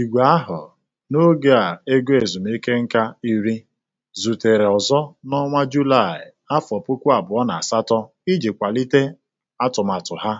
Igwe ahụ n'oge a ego ezumike nka iri, zutere ọzọ n'ọnwa Julaị afọ puku abụọ na asatọ iji kwalite atụmatụ ha.